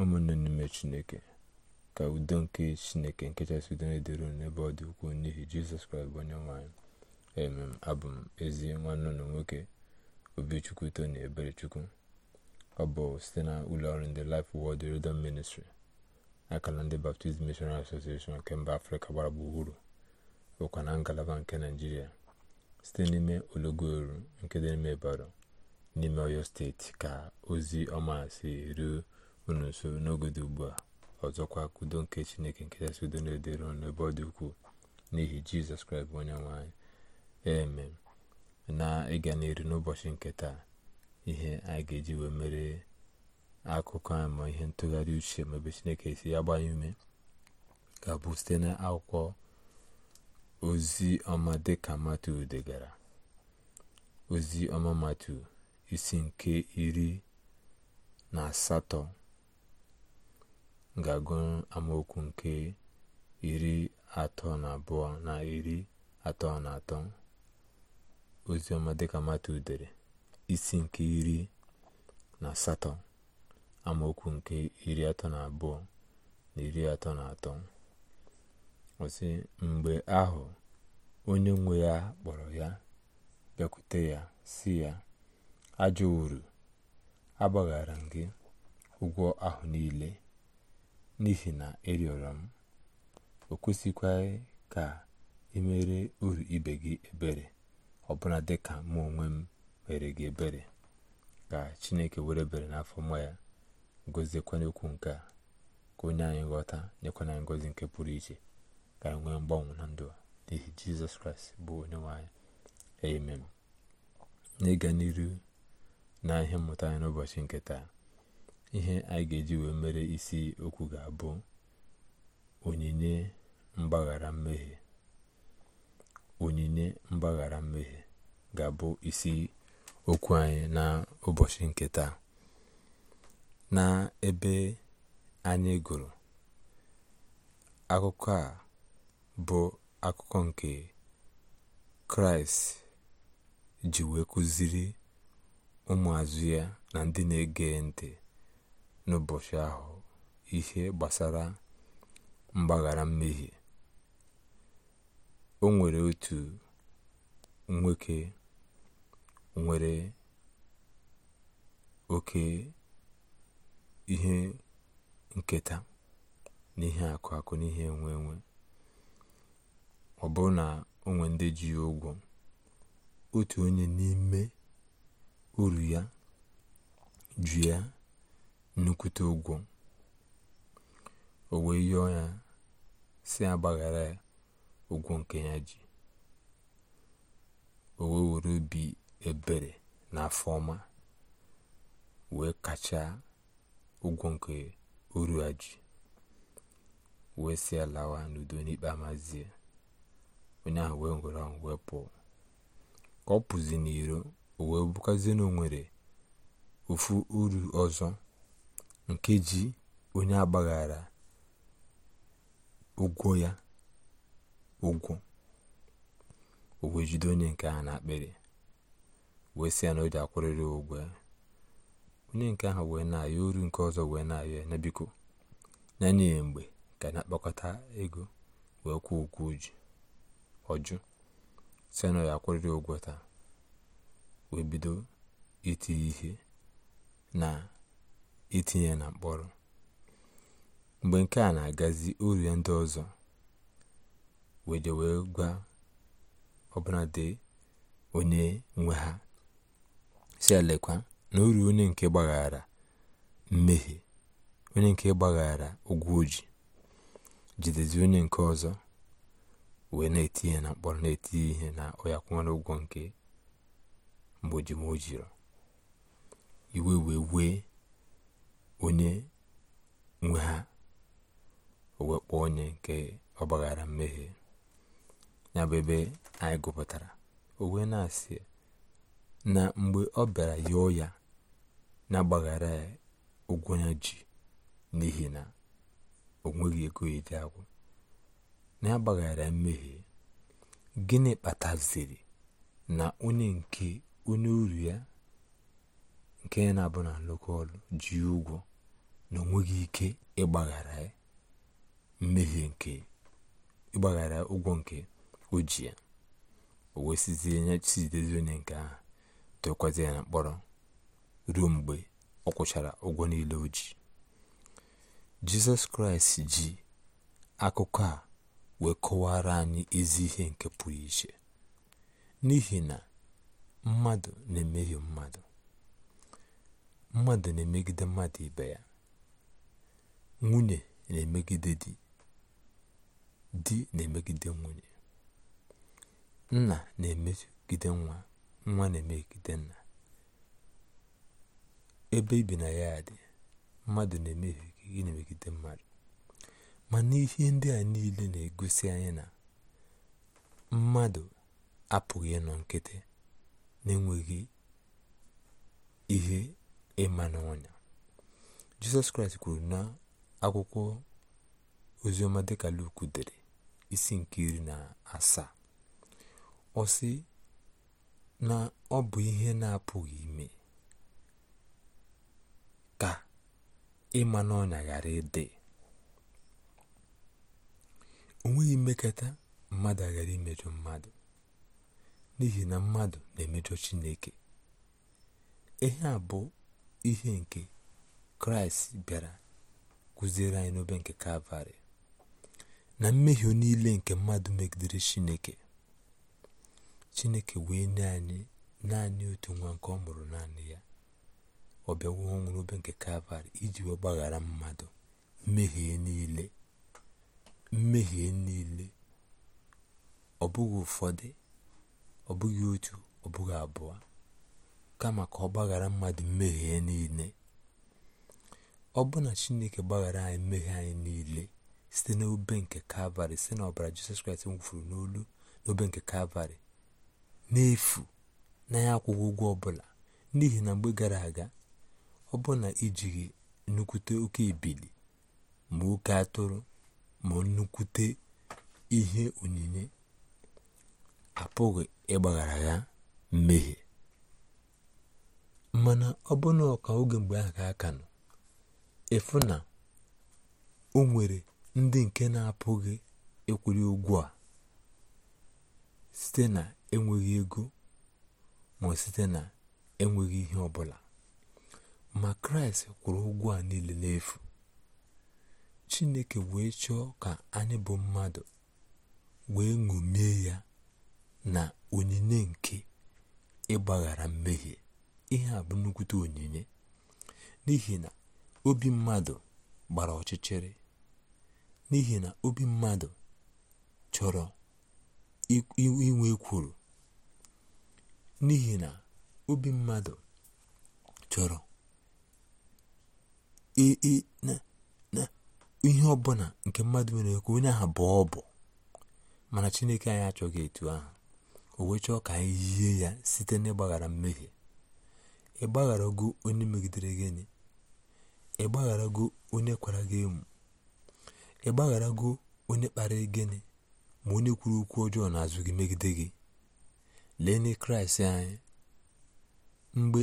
ụmụnne n'ime chineke ka udo nke chineke nke chasị udo na-edoro n'ebe ọ dị ukwuu n'ihi jizọs kraịst bụ onye nwanyị emem abụ m ezi nwanne na nwoke obichukwu tony eberechukwu ọ bụ site na ụlọọrụ ndị Life Word Redemption ministri akala ndị Baptist Missionary Association nke mba afrịka gbara gburugburu bụkwa na ngalaba nke naijiria site n'ime ologoru nke dị n'ime Ibadan n'ime Ọyọ steeti ka ozi ọma si ruo unu nso, n'oge dị ugbu a ọzọkwa kudo nke chineke nke kachasị udo na-edere ọnụ ebe ọ dị ukwuu n'ihi jizọs kraịst bụ onye nwanyị eme na ịga n'iru n'ụbọchị nke taa ihe anyị ga-eji wee mere akụkọ anyị ma ihe ntụgharị uche ma ebe chineke si ya gbanye ume ga-abụ site na akwụkwọ ozi ọma dịka matu degara ozi ọma matu isi nke iri na asatọ ga-agụ amaokwu nke iri atọ na abụọ na iri atọ na atọ oziọma dịka mata udere isi nke iri na asatọ amaokwu nke iri atọ na abụọ na iri atọ na atọ ọsị mgbe ahụ onye nwe ya kpọrọ ya bịakwute ya si ya ajọ uru agbaghara gị ụgwọ ahụ niile n'ihi na ịrịọrọ e m o kwesịkwaghị ka ị e mere uru ibe gị ebere ọbụna dị ka mụ onwe m mere gị ebere ka chineke were ebere n'afọ mma ya goziekwana okwu nke a ka onye anyị ghọta nyekwana ngozi nke pụrụ iche ka anyị nwee mgbanwe na ndụ n'ihi jizọs kraịst bụ onye nwanyị anyị amen n'ịga n'iru na ihe mmụta anyị n'ụbọchị nke taa ihe anyị ga-eji wee mere isi okwu ga-abụ onyinye mgbaghara mmehie onyinye mgbaghara mmehie ga-abụ isi okwu anyị na ụbọchị nke taa na ebe anyị gụrụ akụkọ a bụ akụkọ nke kraịst ji wee kụziri ụmụazụ ya na ndị na-ege ntị n'ụbọchị ahụ ihe gbasara mgbaghara mmehie o nwere otu nwoke nwere oke ihe nketa n'ihe akụ akụ ihe enwe enwe ọ bụrụ na o nwee ndị ji ụgwọ otu onye n'ime uru ya ju ya nnukwute ụgwọ o wee yọọ ya si agbagharị gbaghara nke ya ji o wee were obi ebere na afọ ọma wee kacha ụgwọ nke oru ya ji wee si alawa n'udo n'ikpe amazie onye ahụ wee ngwere ahụ wee pụọ ka ọ pụzi n'iro o wee bụkazie na o nwere ofu uru ọzọ nke ji onye agbaghara ụgwọ ya ụgwọ o wee jide onye nke ahụ n'akpịrị wee sị ya na o ji akwụrịrị ụgwọ ya onye nke ahụ wee na-ayọ uru nke ọzọ wee na-ayọ na biko n'anya mgbe ka na-akpakọta ego wee kwụọ ụgwọ oji ọjụ sị na ya akwụrịrị ụgwọ taa wee bido iti ihe na itinye na mkpọrọ mgbe nke a na-agazi o ndị ọzọ wee wee gwa ọbụladị onye nwe ha si elekwa na o onye nke gbaghara mmehie onye nke gbaghara ụgwọ oji jidezi onye nke ọzọ wee na-eti na mkpọrọ na-eti ihe na ọya kwụnwere ụgwọ nke mgbe iwe wee wee onye nwe ha o onye nke ọgbaghara mmehie ya bụ ebe anyị gụpụtara o wee na-asị na mgbe ọ bịara yọọ ya na-agbaghara ya ụgwọ ya ji n'ihi na o nweghị ego edi agwụ na agbaghara mmehie gịnị kpataziri na onye nke onye uru ya nke na-abụ na ọrụ ji ụgwọ na onweghị ike ịgbaghara mmehie nke ịgbaghara ụgwọ nke o ji ya o wesizie chizidezi onye nke ahụ tụkwazi ya na mkpọrọ ruo mgbe ọ kwụchara ụgwọ niile o ji jizọs kraịst ji akụkọ a wee kọwara anyị ezi ihe nke pụrụ iche n'ihi na mmadụ na-emehie mmadụ mmadụ na-emegide mmadụ ibe ya nwunye na-emegide di di na-emegide nwunye nna na-emegide nwa nwa na-emegide nna ebe ibi na ya dị mmadụ na-emehie na-emegide mmadụ mana ihe ndị a niile na-egosi anyị na mmadụ apụghị ịnọ nkịtị na-enweghị ihe ịma n'ọnya jizọs kraịst kwuru na akwụkwọ ozioma dịka luk dere isi nke iri na asaa ọ sị na ọ bụ ihe na-apụghị ime ka ịma n'ọnya ghara ịdị o nweghị mmekọta mmadụ aghara imejọ mmadụ n'ihi na mmadụ na-emejọ chineke ihe a bụ ihe nke kraịst bịara kụziere anyị n'obe nke kalvarị na mmehie niile nke mmadụ megidere chineke chineke wee nye anyị naanị otu nwa nke ọ mụrụ naanị ya ọ bịawo ọnwụ n'obe nke kalvarị iji wee gbaghara mmadụ mmehie niile mmehie niile ọ bụghị ụfọdụ ọ bụghị otu ọ bụghị abụọ kama ka ọ gbaghara mmadụ mmehie niile ọ bụ na chineke gbaghara anyị mmehie anyị niile site n'obe nke kalvarị site n'ọbara jizọs kraịst nwụfuru n'olu n'obe nke kalvarị n'efu na ya akwụghị ụgwọ ọbụla n'ihi na mgbe gara aga ọ bụ na ijighị nnukwute oke ebili ma oke atụrụ ma nnukwute ihe onyinye apụghị ịgbaghara ya mmehie mana ọ bụ ọka oge mgbe a ka aka nọ ịfụ na o nwere ndị nke na-apụghị ịkwụli ụgwọ a site na enweghị ego ma site na enweghị ihe ọbụla ma kraịst kwụrụ ụgwọ a niile n'efu chineke wee chọọ ka anyị bụ mmadụ wee ṅomie ya na onyinye nke ịgbaghara mmehie ihe a bụ nnukwute onyinye n'ihi na obi mmadụ gbara ọchịchịrị n'ihi na obi mmadụ chọrọ inwe kwuru n'ihi na obi mmadụ chọrọ ihe ọbụla nke mmadụ nwere ekwu onye ahụ bụ ọbụ mana Chineke anyị achọghị etu ahụ o wee chọọ ka anyị yie ya site n'ịgbaghara mmehie gụ onye megidere gị enyi ịgbagharago onye kwara gị emu onye kpara gị enyi ma onye kwuru okwu ọjọọ n'azụ gị megide gị lee na kraịst anyị mgbe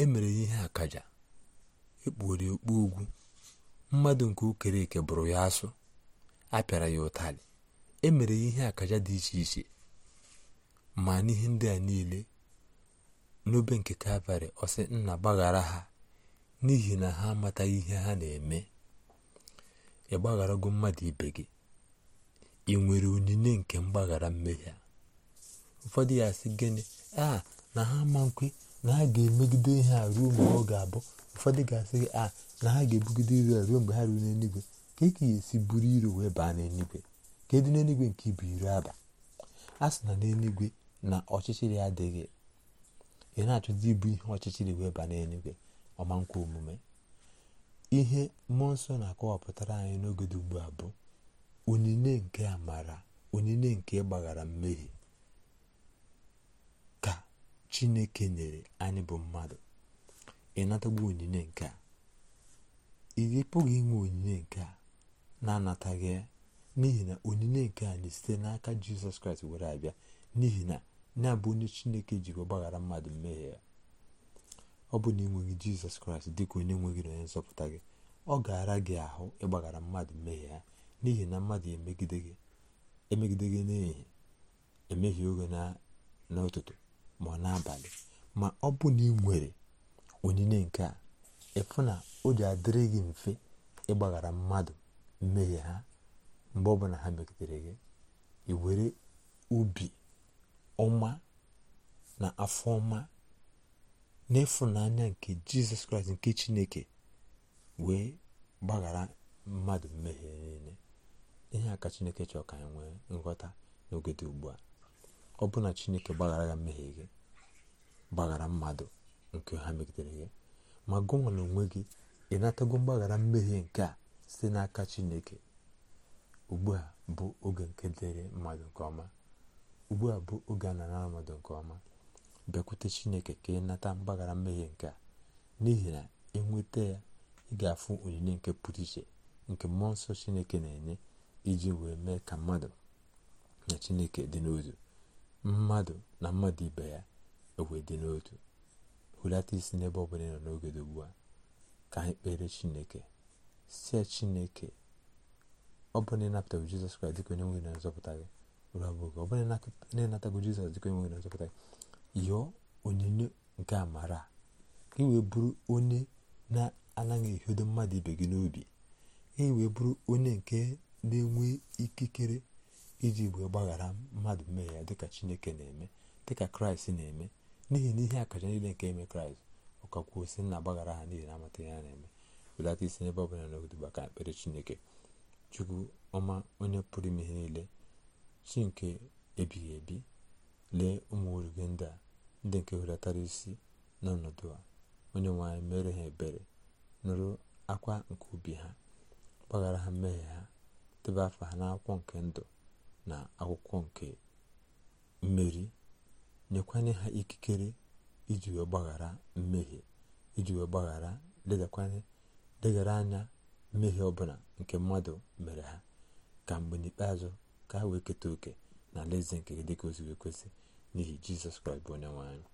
e mere ihe akaja ekpughere okpu ugwu mmadụ nke okere eke bụrụ ya asụ a pịara ya ụtarị e mere ya ihe akaja dị iche iche ma n'ihe ndị a niile n'obe nke kalvarị ọ sị nna gbaghara ha n'ihi na ha amataghị ihe ha na-eme ị gbagharago mmadụ ibe gị ị nwere onyinye nke mgbaghara mmehie ụfọdụ ya sị gịnị a na ha ma nkwe na ha ga-emegide ihe a ruo mgbe ọ ga-abụ ụfọdụ ga-asị gị a na ha ga-ebugide a ruo mgbe ha ruo n'eluigwe ka eke ya esi buru iro wee baa n'eluigwe ka edu n'eluigwe nke ibu iri aba a sị na n'eluigwe na ọchịchịrị adịghị ị na-achọzi ịbụ ihe ọchịchịrị wee ba n'enye gị ọma nkwa omume ihe mmụọ nsọ na-akọwapụtara anyị n'oge dị ugbu a bụ onyinye nke amara onyinye nke ịgbaghara mmehie ka chineke nyere anyị bụ mmadụ ịnatagbu onyinye nke a ị pụghị inwe onyinye nke a na-anataghị ya n'ihi na onyinye nke anyị site n'aka jizọs kraịst were abịa n'ihi na na bụ onye chineke jiri ọgbaghara mmadụ mmehie ya ọ bụ na enweghị jizọs kraịst dịka onye nweghị na onye nzọpụta gị ọ gara gị ahụ ịgbaghara mmadụ mmehie ya n'ihi na mmadụ emegide gị emegide emehie oge n'ụtụtụ ma ọ n'abalị ma ọ bụ na ị nwere onyinye nke a ịfụ na o ji adịrị gị mfe ịgbaghara mmadụ mmehie ha mgbe ọbụla ha megidere gị iwere were ọma na afọ ọma n'ịfụnanya nke jizọs kraịst nke chineke wee gbaghara mmadụ mmehie niile ihe a ka chineke chọrọ ka anyị nwee nghọta n'oge dị ugbu a ọ bụ na chineke gbaghara ya mmehie gị gbaghara mmadụ nke ha megidere gị ma gụnwa na onwe gị ị natago mgbaghara mmehie nke a site n'aka chineke ugbu a bụ oge nke dịrị mmadụ nke ọma ugbu a bụ oge a nara ọnọdụ nke ọma bịakwute chineke ka ị nata mgbaghara mmehie nke a n'ihi na ịnweta ya ị ga-afụ onyinye nke pụrụ iche nke mmụọ nsọ chineke na-enye iji wee mee ka mmadụ na chineke dị n'otu mmadụ na mmadụ ibe ya ewe dị n'otu hulata isi n'ebe ọ bụla ị nọ n'oge dị ugbu a ka anyị kpere chineke si ya chineke ọ bụ na ịnapụtaghị jizọs kraịst dịka onye nwere na nzọpụta gị ụlọ abụọ ọ bụla na-anatago jizọs dịka enweghị nwere nzọpụta yọọ onyinye nke amara ka e wee bụrụ onye na-anaghị ehodo mmadụ ibe gị n'obi e wee bụrụ onye nke na-enwe ikikere iji wee gbaghara mmadụ mmehie ya dịka chineke na-eme dịka kraịst na-eme n'ihi na ihe akaja niile nke eme kraịst ọkakwuo si na agbaghara ha n'ihi na amata a na-eme belata isi n'ebe bụla n'ogoduba baka ekpere chineke chukwu ọma onye pụrụ ime ihe niile si nke ebighị ebi lee ụmụ oru gị ndị a ndị nke hulatara isi n'ọnọdụ a onye nwanyị mere ha ebere nụrụ akwa nke ubi ha gbaghara ha mmehie ha debe afa ha n'akwụkwọ nke ndụ na akwụkwọ nke mmeri nyekwanye ha ikikere iji wee gbaghara mmehie iji wee gbaghara ledakwanye anya mmehie ọbụla nke mmadụ mere ha ka mgbe n'ikpeazụ ka ha wee keta oke na alaeze nke gị dịka o siri ekwesị n'ihi jizọs kraịst bụ onye nwe anyị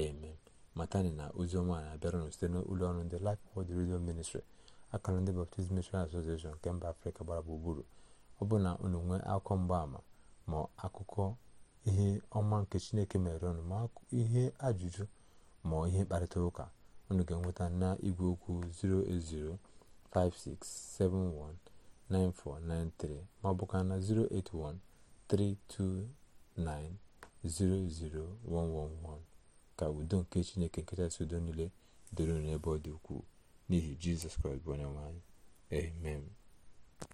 amen matani na ozi ọma na-abịaranụ site n'ụlọ ọrụ ndị Life Word redio Ministry akara ndị Baptist Missionary Association nke mba afrịka gbara bụ gburugburu ọ bụ na unu akụkọ akụkọ ama ma akụkọ ihe ọma nke chineke mere ọnụ ma ihe ajụjụ ma ihe mkparịta ụka unu ga-enweta na igwe okwu 0805671 9493 ma ọ ka na 08132900111 ka udo nke chineke nkechasị udo niile doro n'ebe ọ dị ukwuu n'ihi jizọs kraịst bụ onye nwe amen